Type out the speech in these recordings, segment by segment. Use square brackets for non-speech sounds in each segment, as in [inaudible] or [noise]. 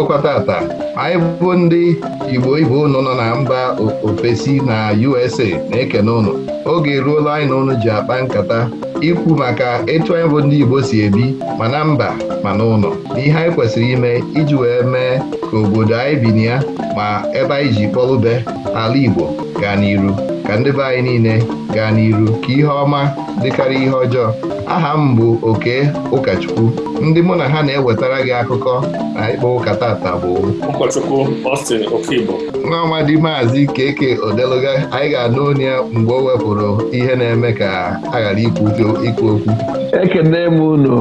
agụkwa tata anyị bụ ndị Igbo ibe ụnụ nọ na mba ofesi na USA na-ekene ụnụ oge ruola anyị na ụnụ ji akpa nkata ikwu maka etu anyị bụ ndị Igbo si ebi ma na mba ma na ụlọ ihe anyị kwesịrị ime iji wee mee ka obodo anyị bi na ya ma ebe anyị ji kpọlụbe ala Igbo gaa n'iru ka ndị be anyị niile gaa n'iru ka ihe ọma dịkarị ihe ọjọọ aha m bụ oke ụkọchukwu ndị mụ na ha na-ewetara gị akụkọ na ịkpọ ụka tata bụ n'ọnwa dị maazị keke odeluga anyị ga-anụ onye ya mgbe o wepụrụ ihe na-eme ka a ghara ikwu okwu ekene m unu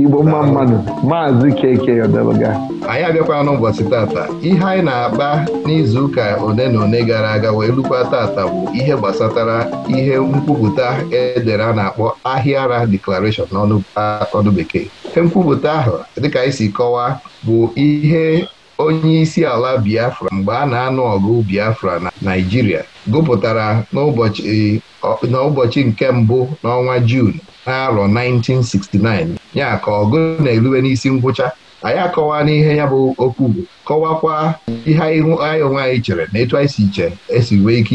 igbo mma mmadụ maazị keke yọdebụga anyị abịakwala n'ụbọchị tata ihe anyị na-akpa n'izuụka one na one gara aga wee lukwa tata bụ ihe gbasatara ihe nkwupụta edere a na-akpọ ahịa ara declaration n'ọnụ bekee ihe nkwupụta ahụ dịka anyị si kọwaa bụ ihe onye isi ala Biafra mgbe a na-anụ ọgụ Biafra na Naịjirịa gụpụtara n'ụbọchị nke mbụ n'ọnwa Jun n'arọ 1969 ya ka ọgụ na eruwe n'isi ngwụcha anyị akọwa n'ihe ya bụ okwu bụ kọwakwa ihe anyị onwe anyị chere na etu anyị si che esi wee ike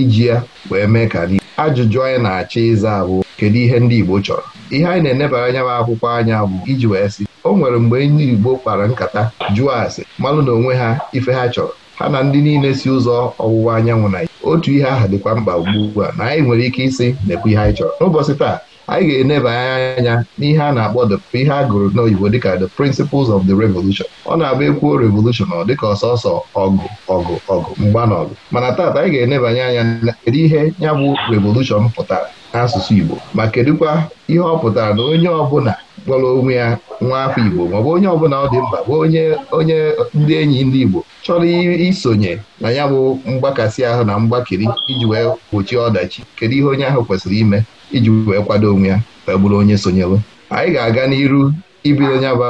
iji ya wee mee ka n'ihe ajụjụ anyị na-achọ ịza bụ kedu ihe ndị Igbo chọrọ ihe anyị na-enebara anya bụ akwụkwọ anya bụ iji wee sị o nwere mgbe ndị Igbo kpara nkata jụọ asị malụ na onwe ha ife ha chọrọ ha na ndị niile si ụzọ ọwụwa anyanwụ na otu ihe ahụ dịkwa mkpa ugbu a na anyị nwere ike ịsị na-ekwu ihe anyị chọrọ n'ụbọchị taa anyị ga-enebanye anya n'ihe a na-akpọ ihe a gụrụ n'oyibo dịka the principles of the revolution ọ na agba ekwuo revolution ọ dịka ọsọsọ ọgụ ọgụ ọgụ mgba ọgụ mana taata anyị ga-enebanye anya kedu ihe ya bụ revolution pụtara n'asụsụ Igbo ma kedụkwa ihe ọ pụtara na onye ọbụla kpọrọ onwe ya nwa afọ Igbo maọbụ onye ọbụla ọ dị mkpa bụ onye onye ndị enyi ndị Igbo chọrọ isonye na ya bụ mgbakasị ahụ na mgbakiri iji wee gbochie ọdachi kedu ihe onye ahụ kwesịrị ime iji wee kwado onwe ya wee bụrụ onye sonyelu anyị ga-aga n'iru ibido nya bụ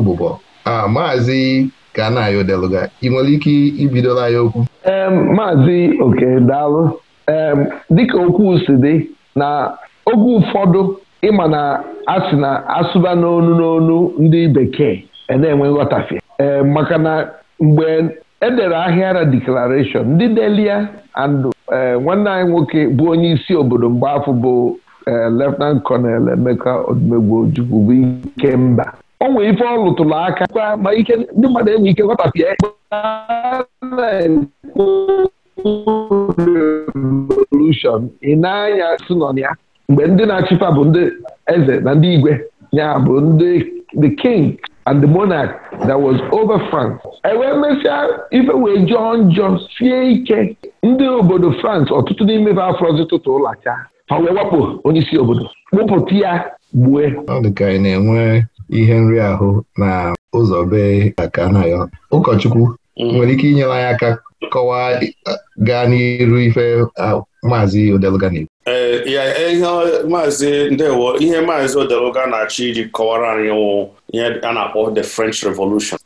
ụbụbọ a maazị ka na-ayọ deluga ị nwere ike ibidola ya okwu maazị oke dịka okwu si dị na oge ụfọdụ ịma na asị na asụba n'onu n'onu ndị bekee e na-enwe nghọtafe ee maka na mgbe edere ahịara declaration ndị delia andụ. E, nwanne anyị nwoke bụ onye isi obodo mgbe afọ bụ hand e, Colonel Emeka Odumegwu Ojukwu bụ ike o nwere ife ọ lụtụrụ aka ma ike ndị mmadụ enwe ike nghọtafie revolushọn ị na-anya si ya mgbe ndị na-achịkwa bụ ndị eze na ndị igwe ya bụ ndị the king and the monarch that was over France enwee mesịa ife wee jọọ njọ sie ike ndị obodo France ọtụtụ n'ime ha afrozi tụtụ ụlọacha ha wee wakpo onye isi obodo kpụpụta ya gbue na-enwe ihe nri ahụ na ụzọ be aka na ya ụkọchukwu mm. nwere ike inyere anyị aka kọwaa gaa n'iru ife maazị Odeluga e, ihe maazị ndewo ihe maazị Odeluga na-achọ iji kọwara anyị wụ ihe a na-akpọ the French Revolution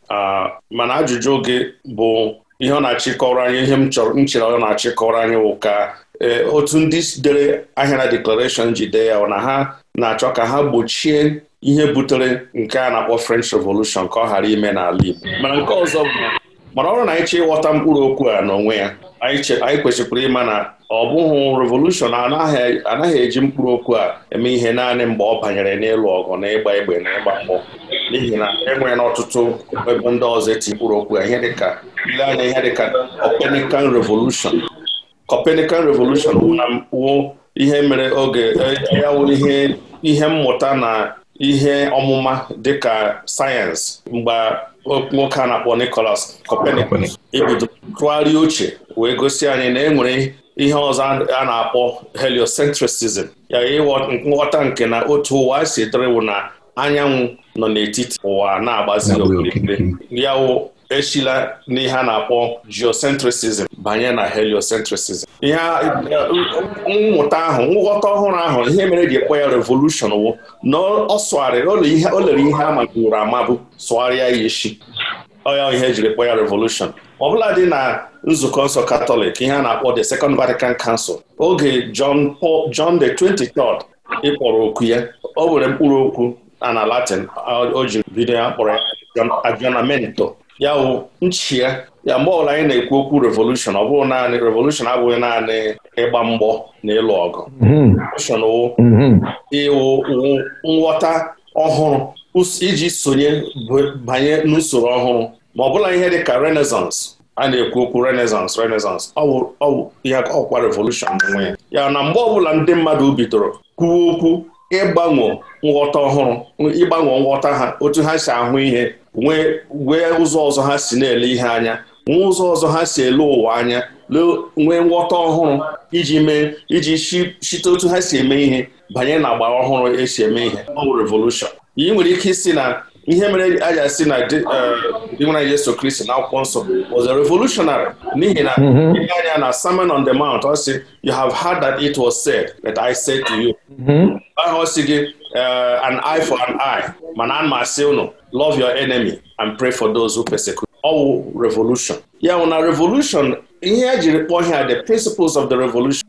mana ajụjụ gị bụ ihe ọ na achị kọwara anyị ihe m chọrọ nchere ọ na achị kọwara anyị wụ ka e, otu ndị dere ahịara declaration ji dee ya na ha na-achọ ka ha gbochie ihe butere nke a na-akpọ French Revolution ka ọ ghara ime n'ala Igbo mana nke ọzọ bụ mana ọrụ na anyị ịghọta mkpụrụ okwu a n'onwe ya anyị kwesịkwara ịma na ọ bụghị revolushọn anaghị eji mkpụrụ okwu a eme ihe naanị mgbe ọ banyere n'ịlụ ọgụ na ịgba egbe na ịgba mgbọ n'ihi na enwere n'ọtụtụ ebe ndị ọzọ eti mkpụrụ okwu a ihe dịka ile anya ihe dịka revolution Copernican revolution wụ ihe mere oge e, ya wụ ihe ihe mmụta na ihe ọmụma dịka sayensị mgbe nwoke a na-akpọ Nicholas Copernicus ibido e tụgharịa uche wee gosi anyị na e nwere ihe ọzọ a na-akpọ heliocentrism ya nghọta nke na otu ụwa si dịrịwụ na anyanwụ nọ n'etiti ụwa na-agbazi okirikiri ya echila n'ihe a na-akpọ geocentrism banye na heliocentrism ihe mmụta ahụ nghọta ọhụrụ ahụ ihe mere e ji ekwe ya revolushon wụ na ọ o lere ihe a maburu amabụ sụgharịa ya echi ọya ihe e jiri ekwe ya revolushon ọbụla dị na nzukọ nsọ katọlik ihe a na-akpọ the second vatican council oge john paul john the 23rd ịkpọrọ okwu ya o were mkpụrụ okwu na latin o ji bido ya kpọrọ ya aggiornamento ya wụ nchi ya ya mgbe ọbụla anyị na-ekwu okwu revolushon ọ bụghị naanị revolushon abụghị naanị ịgba mgbọ na ịlụ ọgụ hmm. revolushon hmm. ịwụ nghọta ọhụrụ iji sonye banye n'usoro ọhụrụ ma ọ bụla ihe dị ka renaissance a na-ekwu okwu renaissance renaissance ihe ọkwa revolushon n'onwe ya ya na mgbe ọbụla ndị mmadụ bidoro kwuwe okwu ịgbanwe nghọta ọhụrụ ịgbanwe nghọta ha otu ha si ahụ ihe nwee ụzọ ọzọ ha si na-ele ihe anya nwee ụzọ ọzọ ha si ele ụwa anya nwee nghọta ọhụrụ iji mee iji chite otu ha si eme ihe banye na agba ọhụrụ esi eme ihe ọ revolushọn ị nwere ike isi na ihe mere a ga-asị na dị e, nwa Yesu Kristi na akwụkwọ nsọ was a revolutionary n'ihi na mhm. ihe anya na Sermon on the Mount ọ sị you have heard that it was said that I said to you mhm. ahụ ọ sị gị Uh, an eye for an eye mana a m asị unu love your enemy and pray for those who persecute ọ wụ revolution ya wụ na revolution ihe ejiri kpọọ ihe the principles of the revolution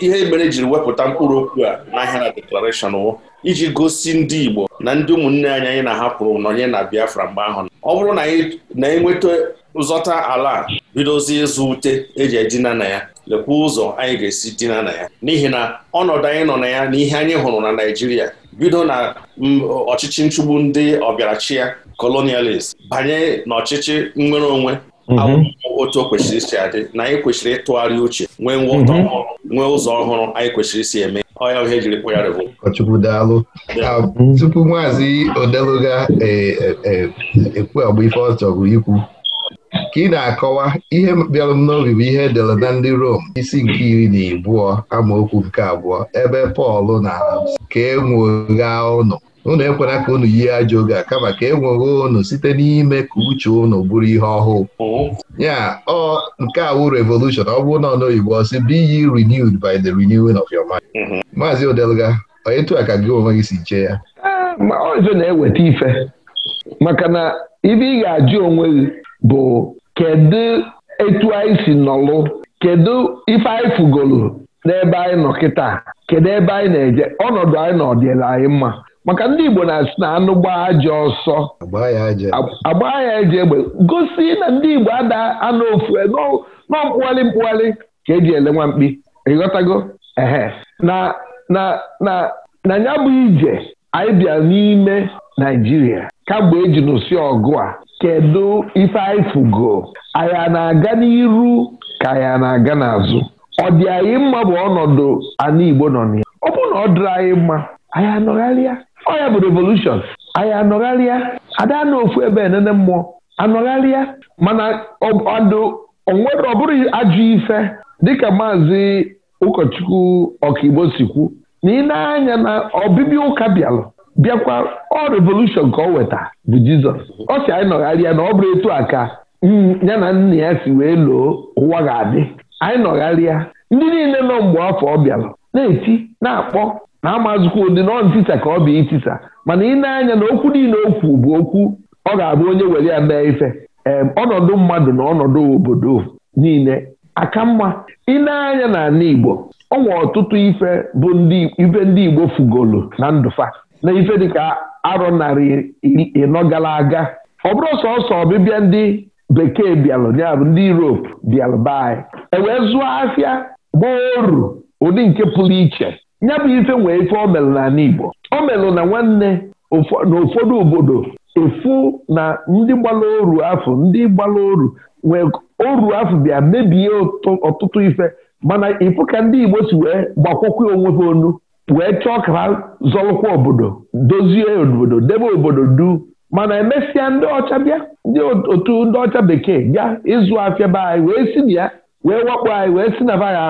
ihe e mere jiri wepụta mkpụrụ okwu a n'ahịa na declaration wụ iji gosi ndị Igbo na ndị ụmụnne anyị anyị na-ahapụrụ n'onye na Biafra mgbe ahụ ọ bụrụ na anyị na-enweta ụzọta ala bidozi ịzụ ute e eji edina na ya lekwa ụzọ anyị ga-esi dina na ya n'ihi na ọnọdụ anyị nọ na ya na ihe anyị hụrụ na Naijiria. bido na ọchịchị nchụgbu ndị ọbịarachi ya colonialist banye n'ọchịchị nnwere onwe mhm. otu o kwesịrị isi adị na anyị kwesịrị ịtụgharị uche nwee nghọta mhm. ọhụrụ nwee ụzọ ọhụrụ anyị kwesịrị isi eme ọya ihe jiri kpụ ya ọchukwu daalụ um, tupu maazị odeluga eh, eh, eh, ekwu agba ife ọ chọgụ ikwu ka ị na-akọwa ihe bịara m n'obi bụ ihe edere na ndị Rom isi nke iri na abụọ amaokwu nke abụọ ebe Pọl na ka e ụnụ unu ekwena ka unu yie ajọ oge a kama ka e nwegha unu site n'ime ka uche unu bụrụ ihe ọhụụ ya ọ nke a wụ revolushon ọ bụ na ọnoyibo ọsị bụ ye renewed by the renewing of your mind maazị Odelga etu a ka gị onwe gị si chee ya eh, ọzọ na-eweta ife maka na ibe ị ga-ajụ onwe gị bụ kedu etu anyị si nọlụ kedu ife anyị fugolu n'ebe anyị nọ kịta kedu ebe anyị na-eje ọnọdụ anyị nọ ọdịla anyị mma maka ndị Igbo na-asị na anụ gbaa aja ọsọ agbaa ya eje egbe gosi na ndị Igbo ada anụ ofu e, nọ mkpụgharị mkpụgharị ka eji ele nwa mkpi ịghọtago ehe na na na na ya bụ ije anyị bịa n'ime Naijiria kamgbe eji nụsị ọgụ a kedu ife anyị fụgo na-aga n'iru ka ya na-aga n'azụ ọ dị anyị mma bụ ọnọdụ ala Igbo nọ na ya ọ bụrụ na ọ dịrị anyị mma anyị anọgharịa ọ ya bụ revolushọn anya anọgharịa ada na ofu ebe enene mmụọ anọgharịa mana onwere ọ bụrụ ife dịka maazị ụkọchukwu ọkaigbo si na ị na-anya na ọbịbịa ụka bịalụ bịakwa ọ revolushọn ka ọ weta bụ jizọs ọ si anyị nọgharịa na ọ bụrụ etu a ka hmm, ya na nna ya si wee loo ụwa ga-adị anyị nọgharịa ndị niile nọ mgbe afọ ọ bịara na-eti na-akpọ na amazụkwa ụdị na ọ ntisa ka ọ bụ itisa mana ị na-anya na okwu niile okwu bụ okwu ọ ga-abụ onye were ya mee ife ọnọdụ mmadụ na ọnọdụ obodo niile aka mma ị na-anya na ala igbo ọ nwe ọtụtụ ife bụ ife ndị igbo fugolu na ndụfa na ife dịka arọ narị ịnọ gara aga ọ bụrụ sọsọ ọbịbịa ndị bekee bịalụ ya ndị Europe bịalụ be anyị e wee zụọ afịa gbaoru ụdị nke pụrụ iche nya bụ ife nwee ife o Igbo o melụ na nwanne n'ụfọdụ obodo efu na ndị gbara oru afọ ndị gbara oru nwee oru afọ bịa mebie ọtụtụ ife mana ịfụ ka ndị Igbo si wee gbakwọkwa onwe ha onu wee chọọ ka ha zọlụkwa obodo dozie obodo debe obodo du mana emesịa ndị ọcha bịa ndị otu ndị ọcha bekee bịa ịzụ afịa be anyị wee si na ya wee wakpo anyị wee si na vaga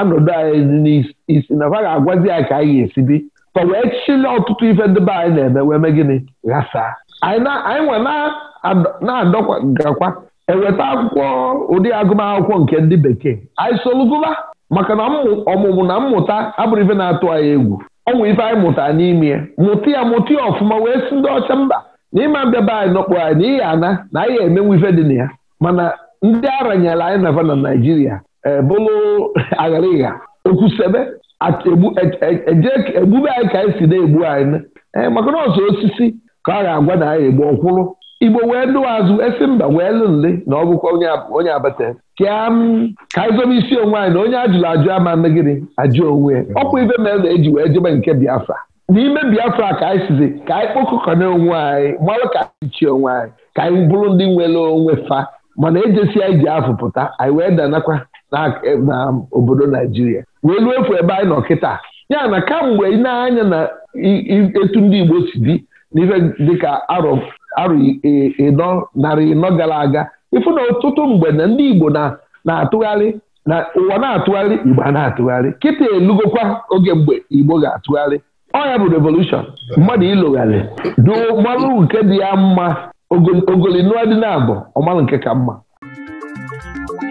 anọdụ anyị n'isi na agwazi anyị ka anyị ga-esi bi tọ wee chịla ọtụtụ ife ndị be anyị na-eme wee mee gịnị ghasaa anyị nwa na-adọgakwa eweta akwụkwọ ụdị agụmakwụkwọ nke ndị bekee anyị soluguba maka na ọmụmụ na mmụta abụrụ ife na-atụ anyị egwu ọnwụ ife anyị mụtara n'ime ya mụta ya mụta ya ọfụma wee si ndị ọcha mba na ịma mbịaba anyị nọkpọ anyị n'ihi ana na anyị emenwu ife dị na ya mana ndị aranyela anyị na na naijiria ebụlụ agharịgha ekwusebe e, e, e, egbube anyị ka anyị si na-egbu anyị maka na ọzọ osisi ka a ga-agwa na anyị egbu ọkwụrụ igbo wee dụwa azụ esi mba wee lụ nle na ọ bụkwa onye abata ka anyị isi onwe anyị na onye ajụrụ ajụ ama megịrị ajụ onwe ọkwa ibe mere na eji wee jebe nke biafra n'ime biafra ka anyị sizi ka anyị kpokọkọna onwe anyị malụ ka anyị onwe anyị ka anyị bụrụ ndị nwere onwe fa mana ejesi anyị ji afụ pụta anyị wee danakwa na obodo naijiria wee luo efu ebe anyị nọ kịta ya na kamgbe ị na-anya na etu ndị igbo si dị n'ife dịka arọ arụ ịnọ narị ịnọ gara aga ịfụ na ọtụtụ mgbe na ndị Igbo na-atụgharị na ụwa na-atụgharị Igbo a na-atụgharị kịta elugokwa oge mgbe Igbo ga-atụgharị ọ ya bụ revolushọn mmadụ ịlụgharị duo mmalụ nke dị ya mma ogoli nụọ dị na abụ nke ka mma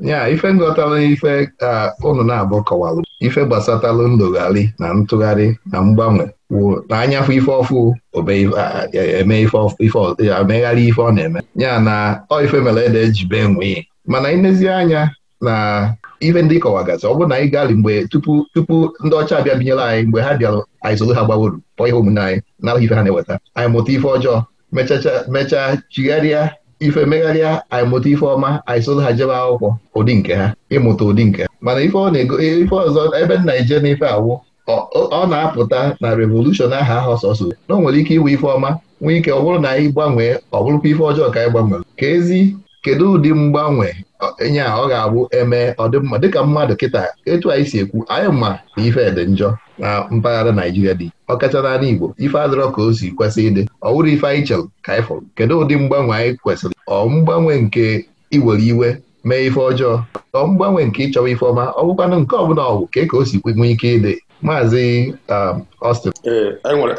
ya ife nghọtara ife ka ụnụ na-abụ kọwalụ ife gbasatalụ ndụgharị na ntụgharị na mgbanwe wụ na anyafụ ife ọfụ omegharị e, ife ọ na-eme ya na ọ ife mere ede jibe nwee mana ilezi anya na ife ndị kọwagazi ọ bụrụ na anyị gali mgbe tupu tupu ndị ọcha bịa binyere anyị mgbe ha bịara anyị soro ha gbawuru kpọọ ihe omume anyị na ife ha na-eweta anyị mụta ife ọjọọ mechaa mechaa chigharịa ife megharịa anyị mụta ife ọma anyị ha jebe akwụkwọ ụdị nke ha ịmụta ụdị nke ha mana ife ọzọ ebe nna ije ife awụ ọ na-apụta na revolushọn aha ahụ ọsọsọ na o nwere ike iwe ife ọma nwee ike ọ bụrụ na anyị gbanwee ọ bụrụkwa ife ọjọọ ka anyị ka ezi kedu ụdị mgbanwe enye a ọ ga-abụ eme ọdịmma dịka mmadụ kịta etu anyị si ekwu anyị ma na ife dị njọ na mpaghara Naijiria dị ọ kacha n'ala Igbo ife adịrọ ka o si kwesị ịdị ọ wụrụ ife anyị chere ka anyị fọrọ kedu ụdị mgbanwe anyị kwesịrị ọ mgbanwe nke iwere iwe mee ife ọjọọ ọ mgbanwe nke ịchọwa ife ọma ọ bụkwanụ nke ọbụla ọgwụ ka e ka o si nwee ike ịdị maazị um, Austin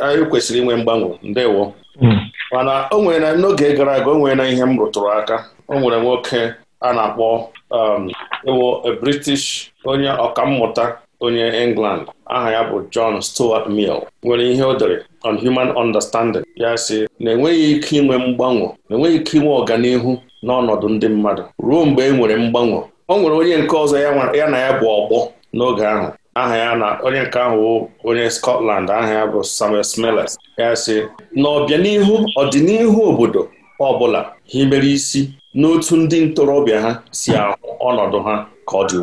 anyị kwesịrị inwe mgbanwe ndewo hmm. mana o nwere na n'oge gara aga o nwere na ihe m rụtụrụ aka o nwere nwoke a na-akpọ um, ewo British onye ọkammụta onye England aha ya bụ John Stuart Mill nwere ihe o dere on human understanding ya sị na enweghị ike inwe mgbanwe na enweghị ike inwe ọganihu n'ọnọdụ ndị mmadụ ruo mgbe e nwere mgbanwe o nwere onye nke ọzọ ya na ya bụ ọgbọ n'oge ahụ aha ya na onye nke ahụ onye Scotland aha ya bụ Samuel Smiles ya sị na ọbịanihu ọdịnihu obodo ọ bụla mere isi n'otu ndị ntorobịa ha si ahụ ọnọdụ ha ka ọ dị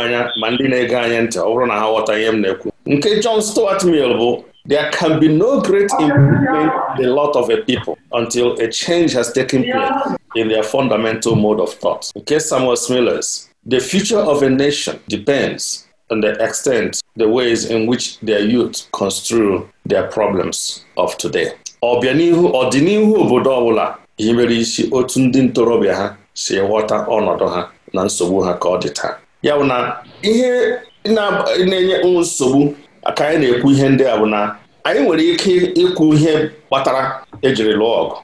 anya ma ndị na-ege anya ntị ọ bụrụ na ha ghọta ihe na-ekwu nke John Stuart Mill bụ there can be no great improvement in the lot of a people until a change has taken place in their fundamental mode of thought nke Samuel smiller's the future of a nation depends on the extent, the ways in which their youth construe their problems of today. Ọbịanihu ọdịnihu obodo ọbụla mere isi otu ndị ntorobịa ha si ghọta ọnọdụ ha na nsogbu ha ka ọ dị taa ya bụ na ihe na-enye nsogbu ka anyị na-ekwu ihe ndị a bụ na anyị nwere ike ịkwụ ihe kpatara ejiri lụọ ọgụ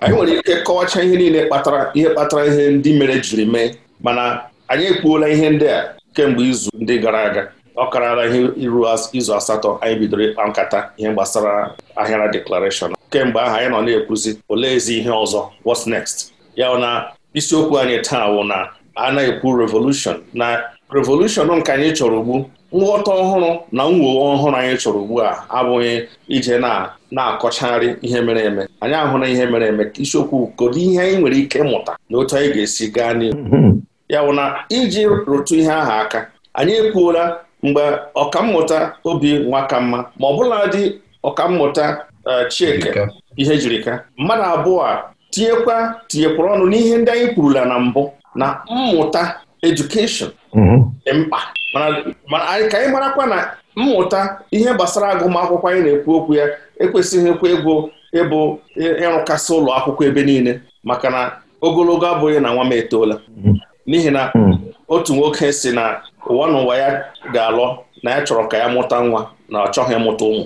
anyị nwere ike kọwachaa ihe niile kpatara ihe kpatara ihe ndị mere jiri mee mana anyị ekpuola ihe ndị a kemgbe izu ndị gara aga ọ karala ihe iru izu asatọ anyị bidoro ịkpa nkata ihe gbasara ahịara deklarashọn kemgbe aha anyị nọ na-ekwuzi oleezi ihe ọzọ what's next ya na isiokwu anyị taa wụ na a na-ekwu revolution na revolution nke anyị chọrọ ugbu nghọta ọhụrụ na mwuwe ọhụrụ anyị chọrọ ugbu a abụghị ije na na-akọchagharị ihe mere eme anyị ahụrụ ihe mere eme isiokwu kedu ihe anyị nwere ike mụta na otu anyị ga-esi gaa n'ihu [laughs] ya wụ na iji rụtụ ihe ahụ aka anyị ekwuola mgbe ọkammụta obi mma ma ọ bụla dị ọkammụta Eh, Chika ihe jiri mmadụ abụọ a tinyekwa tinyekwara ọnụ n'ihe ndị anyị kwurula na mbụ na mmụta edukeshọn mhm. dị mkpa mana ka anyị marakwa na mmụta ihe gbasara agụmakwụkwọ anyị na-ekwu okwu ya ekwesịghị ekwe ego ịbụ ịrụkasị ụlọ akwụkwọ ebe niile maka na ogologo abụghị na nwa m etoola mhm. n'ihi na mhm. otu nwoke si na ụwa n'ụwa ya ga-alọ na ya chọrọ ka ya mụta nwa na ọ chọghị ịmụta ụmụ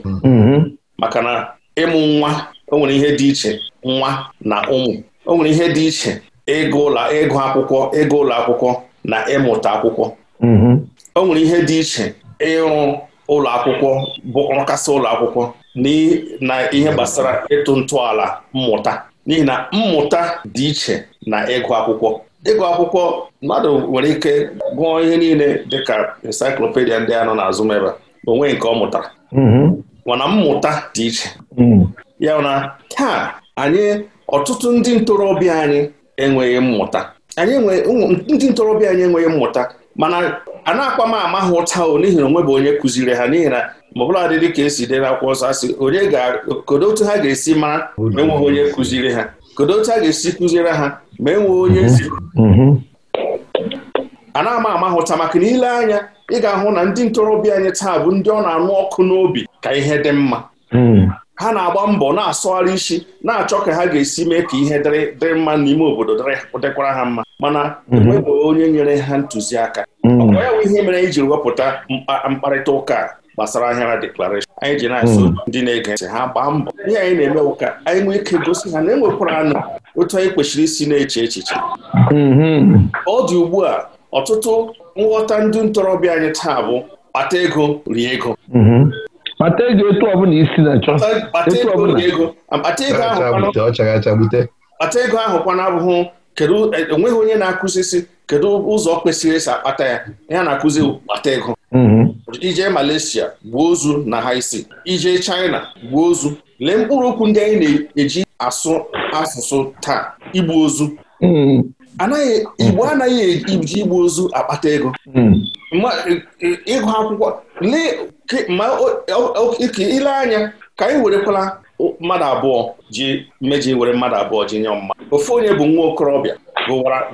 maka na ịmụ nwa o nwere ihe dị iche nwa na ụmụ o nwere ihe dị iche ịgụ ụlọ ịgụ akwụkwọ ịgụ ụlọ akwụkwọ na ịmụta akwụkwọ mm-hmm. o nwere ihe dị iche ịrụ ụlọ akwụkwọ bụ nrụkasị ụlọ akwụkwọ na ihe gbasara ịtụ ntọala mmụta n'ihi na mmụta dị iche na ịgụ akwụkwọ ịgụ akwụkwọ mmadụ nwere ike gụọ ihe niile dịka encyclopedia ndị a nọ n'azụ m ebe nke ọ mụtara mm-hmm. mana mmụta dị iche hmm. ya na taa anyị ọtụtụ ndị ntorobịa anyị enweghị mmụta anyị ndị ntorobịa anyị enweghị mmụta mana a na akpa m ama ha ụta o n'ihi na onwe bụ onye kụziri ha n'ihi na ma ọbụla dị ka esi na akwụkwọ nsọ asị onye kodo otu ha ga-esi mara ma enweghị onye kụziri ha kodo otu ha ga-esi kụziere ha ma enweghị onye mm-hmm. a na-ama ama hụta maka na ile anya ị ga-ahụ na ndị ntorobịa anyị taa bụ ndị ọ na-anụ ọkụ n'obi ka ihe dị mma hmm. ha na-agba mbọ na-asọgharị isi na-achọ ka ha ga-esi mee ka ihe dịrị mma n'ime obodo dịkwara ha mma mana enweghị hmm. onye nyere ha ntụziaka hmm. ọkwa ya bụ ihe mere anyị jiri wepụta mkparịta ụka gbasara ahịara deklarashọn anyị ji na-asụ ndị na-ege ntị ha gbaa mbọ ihe anyị na-eme ụka anyị nwee ike gosi ha na enwekwara anụ otu anyị kwesịrị isi na-eche echiche ọ dị ugbu a ọtụtụ nghọta ndị ntorobịa anyị taa bụ kpata ego rie ego mhm. kpata ego etu ọbụla isi na-achọ kpata ego ahụ kwana abụghị kedu enweghị onye na-akụzisi kedu ụzọ kwesịrị esi akpata ya ya na-akụzi kpata ego mhm. ije Malaysia gbuo ozu na ha isi ije China gbuo ozu lee mkpụrụ okwu ndị anyị na-eji asụ asụsụ taa igbu ozu mhm. anaghị igbo anaghị eji igbu ozu akpata ego hmm. ịgụ akwụkwọ ile anya ka anyị werekwala mmadụ abụọ ji meji were mmadụ abụọ ji nye mma Ofe onye bụ nwa okorobịa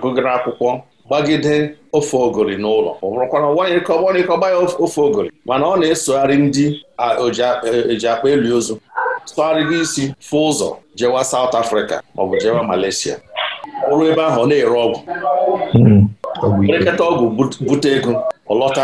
gụgara akwụkwọ gbagide ofe ogori n'ụlọ ọ bụrụkwara nwaanyịkọgba ya ofe ogori mana ọ na-esogharị ndị eji e, e akpa eli ozu sogharịgo isi fụ ụzọ jewa South Africa maọbụ jewa Malaysia bụrụ ebe ahụ na-ere ọgwụ erekọta hmm. ọgwụ bute ego ọlọta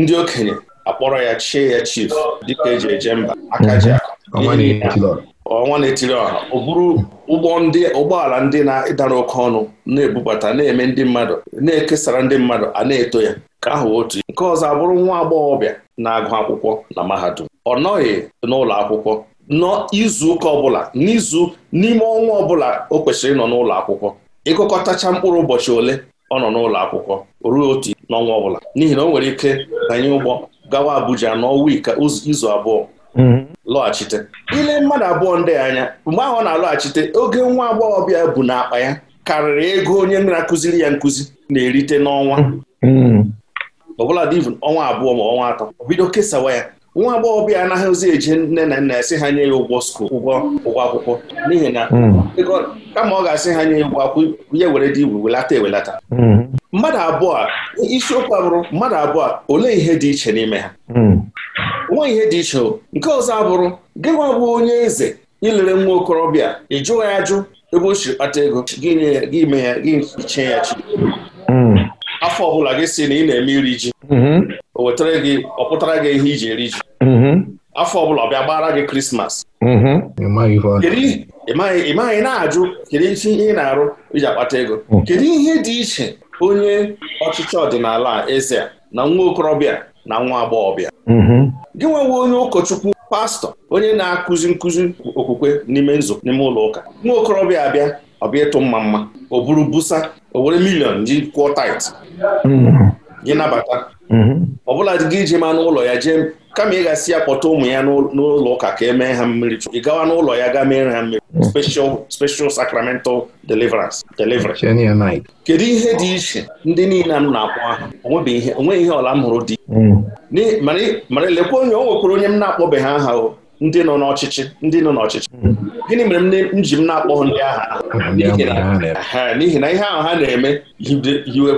ndị okenye akpọrọ ya chie ya chief dịka eji eje mba Akaja, mhm. ọnwa na-etiri ọha ọ bụrụ ụgbọ ndị ụgbọala ndị na-ịdara oke ọnụ na-ebubata na-eme ndị mmadụ na-ekesara ndị mmadụ a na-eto ya ka ahụ otu nke ọzọ abụrụ nwa agbọghọbịa na-agụ akwụkwọ na mahadum ọ nọghị n'ụlọ akwụkwọ n'izuụka ọbụla n'izu n'ime ọnwa ọbụla o kwesịrị ịnọ n'ụlọ akwụkwọ ịgụkọtacha mkpụrụ ụbọchị ole ọ nọ n'ụlọ akwụkwọ ruo otu n'ọnwa ọbụla n'ihi na o nwere ike banye ụgbọ gawa Abuja n'ọnwa izu abụọ mhm. lọghachite ile mmadụ abụọ ndị anya mgbe ahụ ọ na-alọghachite oge nwa agbọghọbịa bụ n'akpa ya karịrị ego onye na-akụziri ya nkụzi na-erite n'ọnwa mhm. ọbụla dị ọnwa abụọ ma ọnwa atọ bido kesawa ya nwa agbọghọbịa anaghịzi eje nne na nna esi ha nye ya ụgwọ skul ụgwọ ụgwọ akwụkwọ n'ihi na hmm. kama ọ ga-asị ha nye ya ụgwọ akwụkwọ ya were dị igwe welata ewelata hmm. mmadụ abụọ a isiokwu abụrụ mmadụ abụọ a olee ihe dị iche n'ime ha hmm. nwa ihe dị iche nke ọzọ abụrụ gịnwa bụ onye eze ilere nwa okorobịa ị jụghị ajụ ebe o si kpata ego gị nye ya gị ime ya gị iche ya chi afọ ọbụla gị si na ị na-eme iri ji mhm. o wetara gị ọ pụtara gị ihe iji eri ji mhm. afọ ọbụla ọ bịa gbara gị krismas mhm. ị maghị na-ajụ kedu ihe ị na-arụ iji akpata ego mm. kedu ihe dị iche onye ọchịchị ọdịnala eze na nwa okorobịa na nwa agbọghọbịa gị nwewe onye ụkọchukwu pastọ onye na-akụzi nkụzi okwukwe n'ime nzukọ n'ime ụlọ ụka nwa okorobịa abịa ọbịa ịtụ mma mma o buru busa o were milion ji kwụọ tait gị nabata mm-hmm. ọbụla gị iji ma n'ụlọ ya jee kama ị gasị ya kpọta ụmụ ya n'ụlọ ụka ka e mee ha mmiri ị gawa n'ụlọ ya gaa mere ha mmiri mm. special sacramental deliverance deliverance kedu ihe dị iche ndị niile anụ na-akpọ aha onweghị ihe ọla m hụrụ dị mm. mara lekwa onye o nwekwara onye m na-akpọbeghị aha o ndị nọ n'ọchịchị ndị nọ n'ọchịchị hmm. gịnị mere m ji m na-akpọ ndị agha n'ihi na ihe ahụ ha na-eme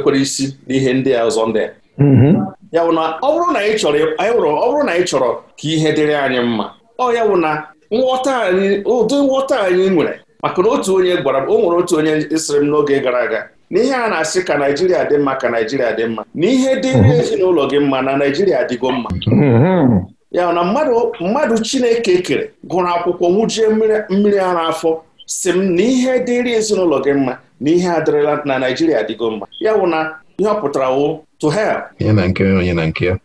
kwere isi n'ihe ndị a ọzọ ndị mm-hmm. ya bụ na ọ bụrụ na anyị chọrọ ka ihe dịrị anyị mma ọ ya bụ na nghọta anyị ụdị nghọta anyị nwere maka na otu onye gwara m o nwere otu onye sịrị m n'oge gara aga n'ihe a na-asị ka Naijiria dị mma ka Naijiria dị mma na ihe dịrị mm-hmm. ezinụlọ gị mma na naijiria adịgo mma mm-hmm. ya na mmadụ mmadụ chineke kere gụrụ akwụkwọ nwụjie mmiri ara afọ si m na ihe dịrị ezinụlọ gị mma na ihe adịrịla na naijiria dịgo mma ya bụ na ihe ọ pụtara wụ to help onye na nke onye na nke